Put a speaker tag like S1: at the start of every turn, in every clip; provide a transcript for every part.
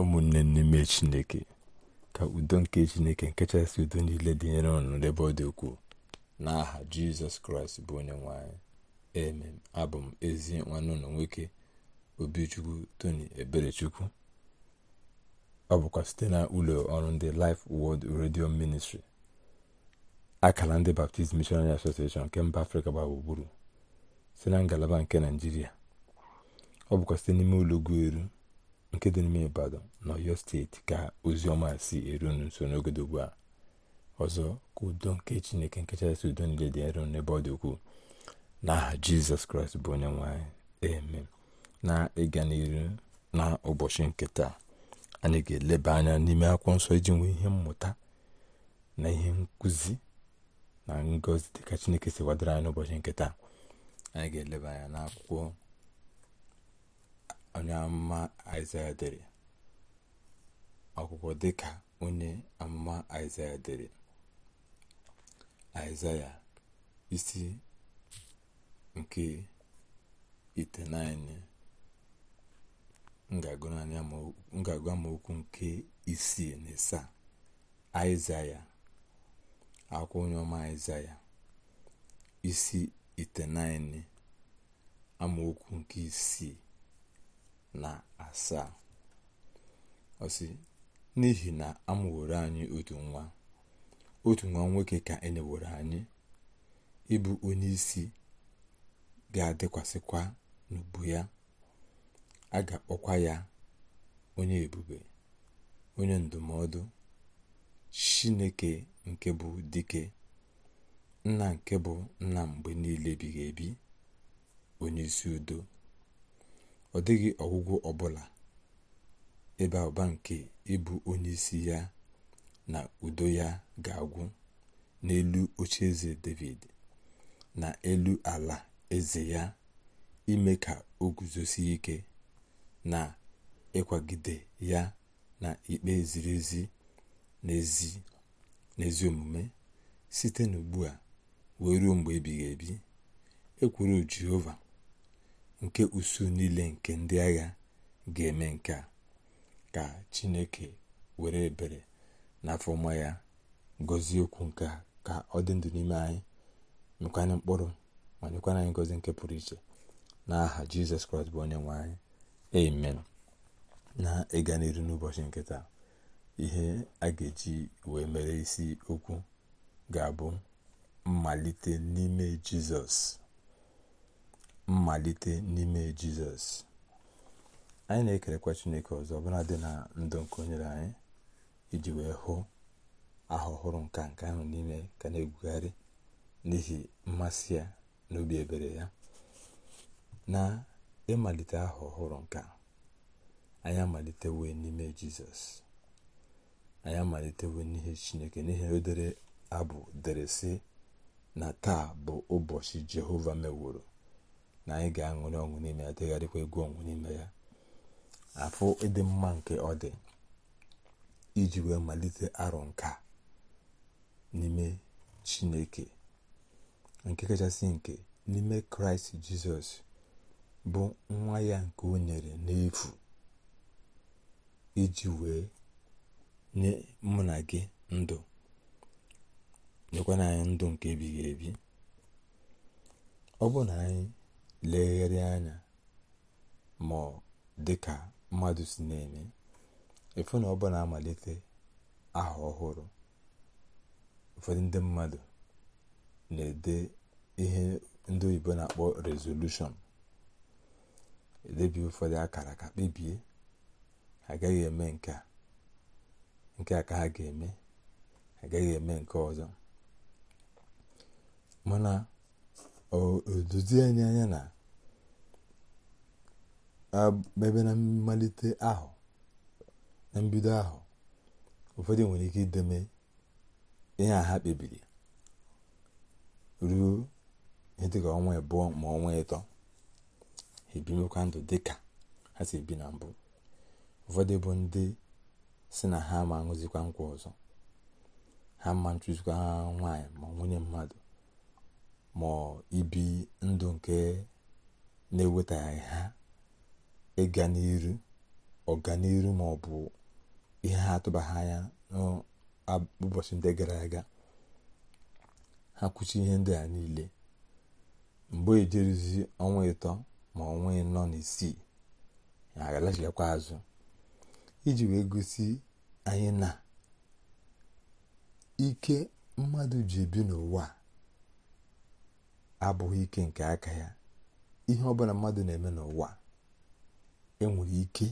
S1: ụmụnne n'ime chineke ka udo nke chineke nkechasị udo niile dịnyere ọnụ n'ebe ọ dị ukwuu n'aha jizọs kraịst bụ onye nwanyị emem abụ m ezi nwanne ụlọ nwoke obichukwu tony eberechukwu ọ bụkwa site na ụlọ ọrụ ndị Life Word redio ministri akara ndị Baptist Missionary Association nke mba afrịka gba gburugburu na ngalaba nke naijiria ọ bụkwa site n'ime ụlọ ugwu eru nke dị n'ime ibadan na ọyọ steeti ka ozi ọma si eru unu nso n'oge dị ugbu a ọzọ ka udo nke chineke nke kachasị udo niile dị eru n'ebe ọ dị ukwuu n'aha jizọs kraịst bụ onye nwanyị eme na ịga n'iru na ụbọchị nke taa anyị ga-eleba anya n'ime akwụkwọ nsọ iji nwee ihe mmụta na ihe nkụzi na ngọzi dịka chineke si wadara anyị n'ụbọchị nke taa anyị ga-eleba anya n'akwụkwọ onye amụma aịzaya dere akwụkwọ dịka onye amụma aịzaya dere aịzaya isi nke itenaịnị ngagụ amaokwu nke isii na ịsaa aịzaya akwụkwọ onye ọma aịzaya isi itenaịnị amaokwu nke isii na asaa ọsị n'ihi na amụworo anyị otu nwa otu nwa nwoke ka enyeworo anyị ịbụ onye isi ga-adịkwasịkwa n'ubu ya a ga-akpọkwa ya onye ebube onye ndụmọdụ chineke nke bụ dike nna nke bụ nna mgbe niile ebighị ebi onye isi udo ọ dịghị ọgwụgwọ ọbụla ịba ụba nke ịbụ onye isi ya na udo ya ga-agwụ n'elu oche eze david na elu ala eze ya ime ka o guzosie ike na ịkwagide ya na ikpe ziri ezi n'ezi omume site n'ugbu a wee ruo mgbe ebighị ebi ekwuru jehova nke usuu niile nke ndị agha ga-eme nke a ka chineke were ebere n'afọ ọma ya gọzie okwu nke a ka ọ dị ndụ n'ime anyị mekwanye mkpụrụ ma nyekwana anyị ngọzi nke pụrụ iche n'aha jizọs kraịst bụ onye nwe anyị amen na ịga n'iru n'ụbọchị nke taa ihe a ga-eji wee mere isi okwu ga-abụ mmalite n'ime jizọs mmalite n'ime jizọs anyị na-ekerekwa chineke ọzọ ọbụla dị na ndụ nke onyere anyị iji wee hụ aha ọhụrụ nka nke ahụ n'ime ka na-egwugharị n'ihi mmasị ya na ebere ya na ịmalite aha ọhụrụ nka anyị wee n'ime jizọs anyị amalitewe n'ihe chineke n'ihi o abụ deresị na taa bụ ụbọchị jehova meworo na anyị ga-aṅụrị ọṅụ n'ime ya degharịkwa egwu ọṅụ n'ime ya afọ ịdị mma nke ọ dị iji wee malite arọ nka n'ime chineke nke kachasị nke n'ime kraịst jizọs bụ nwa ya nke o nyere n'efu iji wee nye mụ na gị ndụ nyekwana anyị ndụ nke ebighị ebi ọ bụ na anyị legharịa anya ma ọ ka mmadụ si na-eme ịfụ na ọ bụ na-amalite aha ọhụrụ ụfọdụ ndị mmadụ na-ede ihe ndị oyibo na-akpọ rezolushọn Edebi ụfọdụ akara ka kpebie agaghị eme nke a nke a ka ha ga-eme agaghị eme nke ọzọ mana odozie anyị anya na ebe na mmalite ahụ na mbido ahụ ụfọdụ nwere ike ideme ihe ha kpebiri ruo ihe dịka ọnwa abụọ ma ọnwa ịtọ ebi ebimekwa ndụ dịka ha si ebi na mbụ ụfọdụ bụ ndị si na ha ma aṅụzikwa nkwa ọzọ ha ma ntụzikwa ha nwaanyị ma nwunye mmadụ ma ibi ndụ nke na-ewetaghị ha ịga n'iru ọganiru ma ọ bụ ihe ha atụbaghị anya n'ụbọchị ndị gara aga ha kwụchi ihe ndị a niile mgbe ejeruzi ọnwa ịtọ ma ọnwa ịnọ na isii ha azụ iji wee gosi anyị na ike mmadụ ji ebi n'ụwa a abụghị ike nke aka ya ihe bụla mmadụ na-eme n'ụwa enwere ike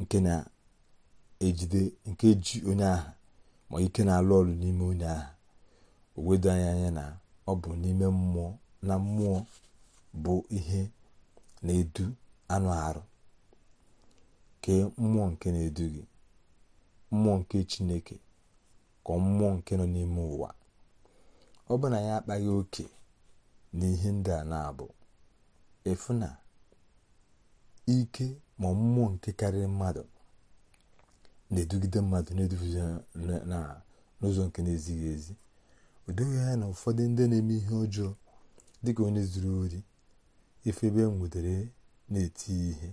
S1: nke na-ejide nke ji onye aha ma ike na-alụ ọrụ n'ime onye aha o wedo anya anya na ọ bụ n'ime mmụọ na mmụọ bụ ihe na-edu anụ arụ ke mmụọ nke na-edu gị mmụọ nke chineke ka mmụọ nke nọ n'ime ụwa ọ bụ ya akpaghị oke n'ihe ndị a na-abụ efu na ike ma mmụọ nke karịrị mmadụ na-edugide mmadụ na n'ụzọ nke na-ezighị ezi o doghị anya na ụfọdụ ndị na-eme ihe ọjọọ dịka onye zuru ori ife ebe e na-eti ihe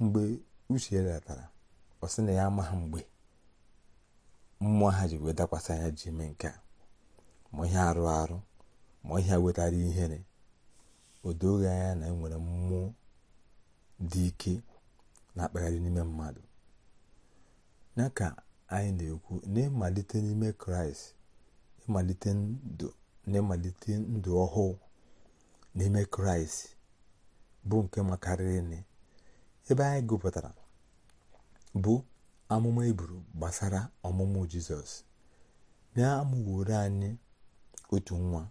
S1: mgbe uche ya ratara ọ sị na ya amaghị mgbe mmụọ ha ji wee dakwasị anya ji eme nke a ma ihe arụ arụ ma ihe wetara ihere o anya na nwere mmụọ dị ike na-akpagharị n'ime mmadụ ya ka anyị na-ekwu n'ịmalite n'ime kraịst ịmalite ndụ ọhụụ n'ime kraịst bụ nke makarịrị ebe anyị gụpụtara bụ amụma iburu e gbasara ọmụmụ jizọs na-amụworo anyị otu nwa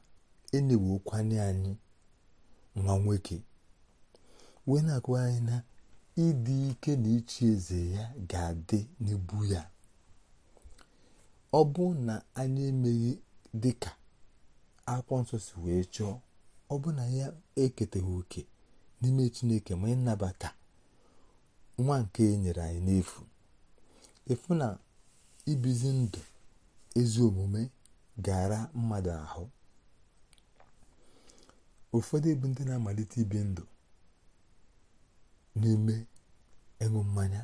S1: enewokwanye anyị nwa nwoke wee na-akụwa anyị na ịdị ike na ịchị eze ya ga-adị n'ibu ya ọ bụ na anyị emeghị dịka akwụkwọ nsọ si wee chọọ ọ bụ na ya eketeghị oke n'ime chineke ma ịnabata nwa nke e nyere anyị n'efu efu na ibizi ndụ ezi omume gara mmadụ ahụ ụfọdụ bụ ndị na-amalite ibi ndụ n'ime ịṅụ mmanya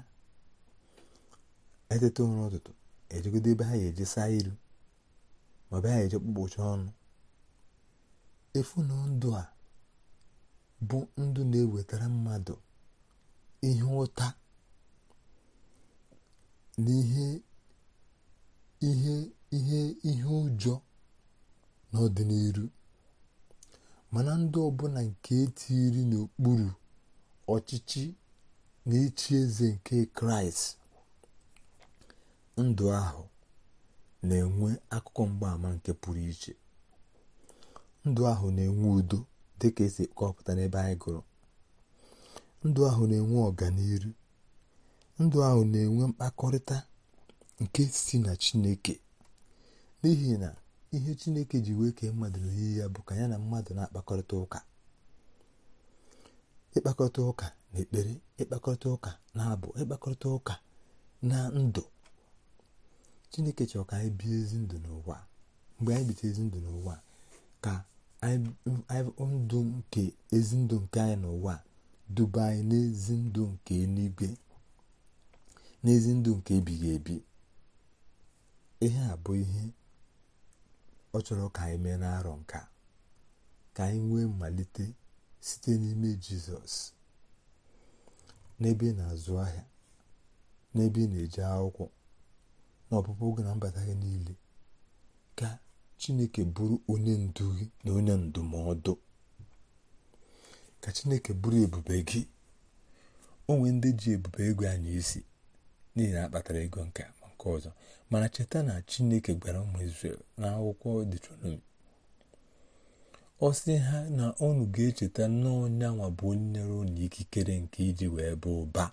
S1: eteta ụra ụtụtụ ejegodo ebe ha ga iru ma ọ ha ga-eje kpụkpụcha ọnụ efu na ndụ a bụ ndụ na-ewetara mmadụ ihe ụta na ihe ihe ihe ihe ụjọ n'ọdịnihu mana ndị ọbụla nke etiri n'okpuru ọchịchị na-echi eze nke kraịst ndụ ahụ na-enwe akụkọ mgbaama nke pụrụ iche ndụ ahụ na-enwe udo dị ka esi kọpụta n'ebe anyị gụrụ ndụ ahụ na-enwe ọganiru ndụ ahụ na-enwe mkpakọrịta nke si na chineke n'ihi na ihe chineke ji wee kee mmadụ n'oyiyi ya bụ ka ya na mmadụ na-akpakọrịta ụka ịkpakọrịta ụka na ekpere ịkpakọrịta ụka na abụ ịkpakọrịta ụka na ndụ chineke chọrọ ka anyị bie ezi ndụ n'ụwa mgbe anyị bite ezi ndụ n'ụwa ka ndụ nke ezi ndụ nke anyị n'ụwa duba anyị n'ezi ndụ nke eluigwe n'ezi ndụ nke ebighị ebi ihe a bụ ihe ọ chọrọ ka anyị mee n'arọ nke a ka anyị nwee mmalite site n'ime jizọs n'ebe na-azụ ahịa n'ebe ị na eji akwụkwọ na ọpụpụ oge na mbata gị niile ka chineke bụrụ onye ndu gị na onye ndụmọdụ ka chineke bụrụ ebube gị onwe ndị ji ebube ego anyị isi n'ihi na akpatara ego nke nke ọzọ mana cheta na chineke gwara ụmụ Izrel n'akwụkwọ Deuteronomi ọ sị ha na unu ga-echeta n'ọnyanwa bụ onye nyere unu ikikere nke iji wee bụ ụba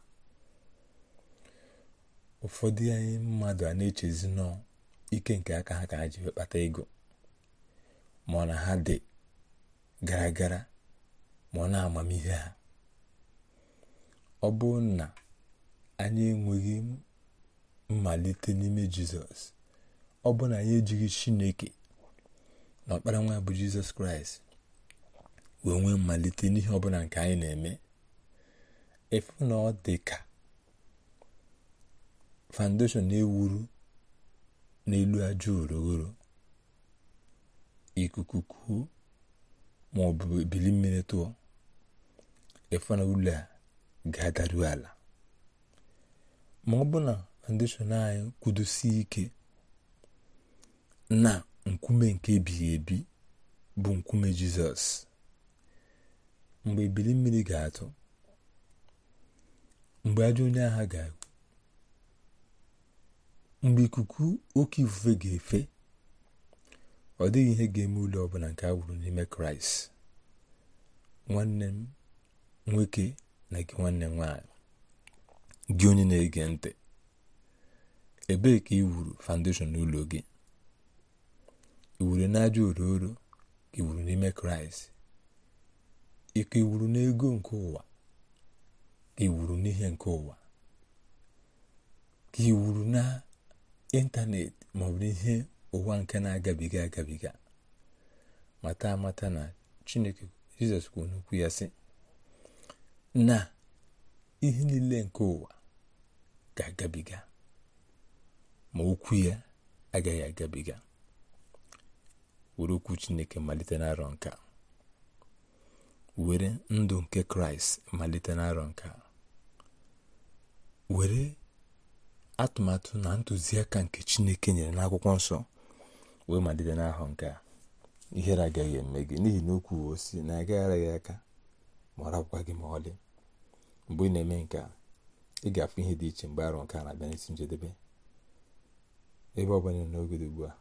S1: ụfọdụ anyị mmadụ a na-echezi nọ ike nke aka ha ka ha ji kpata ego ma na ha dị gara gara ma ọ na-amamihe ha ọ bụ na anyị enweghị mmalite n'ime jizọs ọ bụ na ya ejighị chineke na ọkpara nwa bụ jizọs kraịst wee nwee mmalite n'ihe ọbụla nke anyị na-eme efu na ọ dị ka foundation na-ewuru n'elu aja urughuru ikuku ma ọ bụ ebili mmiri tụọ efu na ụlọ a ga-adaru ala ma ọ bụ na foundation anyị kwudosie ike na nkume nke ebighị ebi bụ nkume jizọs mgbe ebili mmiri ga-atụ mgbe ajọ onye agha ga mgbe ikuku oke ifufe ga-efe ọ dịghị ihe ga-eme ụlọ ọbụla nke a wụrụ n'ime kraịst nwanne m nwoke na gị nwanne m nwaanyị gị onye na-ege ntị ebee ka i wuru foundation n'ụlọ gị iwuru wuru n'aja ororo ka ị wuru n'ime kraịst ike iwuru n'ego nke ụwa ka ị n'ihe nke ụwa ka ị wuru na ịntanetị ma ọ bụ ihe ụwa nke na-agabiga agabiga mata amata na chineke jizọs kwuru n'okwu ya sị na ihe niile nke ụwa ga-agabiga ma okwu ya agaghị agabiga were okwu chineke malite n'arọ nka were ndụ nke kraịst malite n'arọ nka were atụmatụ na ntụziaka nke chineke nyere n'akwụkwọ nsọ wee malite n'ahụ nke ihere agaghị eme gị n'ihi na okwu osi na agaghara gị aka ma ọ rapụkwa gị ma ọlị mgbe ị na-eme nke ị ga-afụ ihe dị iche mgbe arọ nke na-abịa n'isi njedebe ebe ọ bụla n'oge dị ugbu a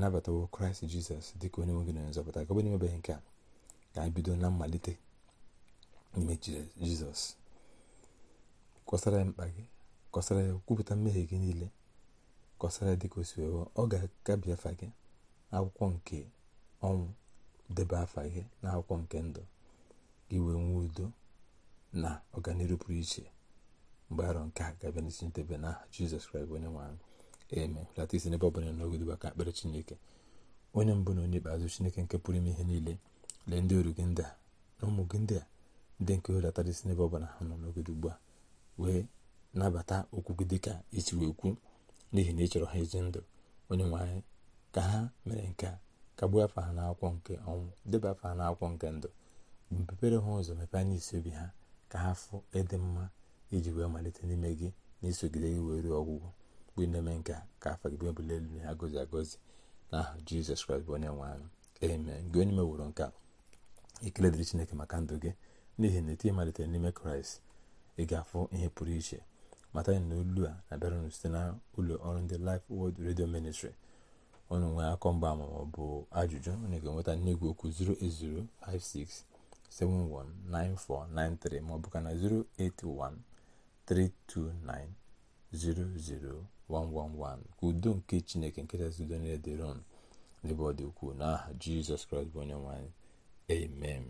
S1: nabatawo kraịst jizọs dịka onye nwe gị na nzọpụta ka ọ bụrụ emebeghị nke a ka anyị bido na mmalite n'ime jizọs kọsara ya mkpa gị kọsara ya kwupụta mmehie gị niile kọsara ya dịka o ọ ga-akabi afa gị akwụkwọ nke ọnwụ debe afa gị na akwụkwọ nke ndụ gị wee nwee udo na ọganihu pụrụ iche mgbe arọ nke a ga n'isi ntebe n'aha jizọs kraịst onye nwe anyị eme lata isi n'ebe ọ bụla n'oge ka akpere chineke onye mbụ na onye ikpeazụ chineke nke pụrụ ime ihe niile lee ndị oru gị ndị a na ụmụ gị ndị a ndị nke hulatara isi n'ebe ọ ha nọ n'oge ugbu a wee nabata okwu gị dịka isi wee kwu n'ihi na ị chọrọ ha ezi ndụ onye nwanyị. ka ha mere nke a gbuo afọ ha n'akwụkwọ nke ọnwụ deba afọ ha n'akwụkwọ nke ndụ mpepere ha ụzọ mepee anya isi obi ha ka ha fụ ịdị e mma iji wee malite n'ime gị na isogide gị wee ruo ọgwụgwọ mgbe ị na-eme nke ka afọ gị bụ ebuli elu na agọzi agọzi na aha jizọs kraịst bụ onye nwe anyị amen gị onye meworo nke a ekele dịrị chineke maka ndụ gị n'ihi na etu malitere n'ime kraịst ị ga-afụ ihe pụrụ iche mata na olu a na-abịara site na ụlọ ọrụ ndị Life Word Radio Ministry ọnụ nwere akọ mgba ma ọ bụ ajụjụ onye ga-enweta n'igwe okwu 08056719493 ma ọ bụ ka na 081329009 111 ka udo nke chineke nkechasị udo niile dịron n'ebe ọ dị ukwuu n'aha jizọs kraịst bụ onye nwanyị. amen